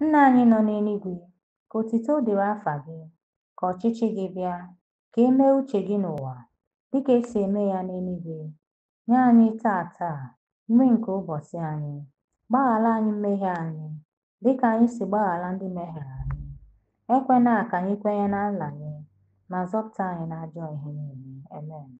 “ Nna anyị nọ n'eluigwe, ka otuto dịrị afa gị, ka ọchịchị gị bịa, ka e mee uche gị n'ụwa dịka esi eme ya n'eluigwe. Nye anyị taa taa nri nke ụbọchị anyị. Gbaghara anyị mmehie anyị, dịka anyị si gbaghara ndị mehiere anyị. ekwena ka anyị kwenye na anyị ma zọpụta anyị n'ajọ ihe niile. Amen.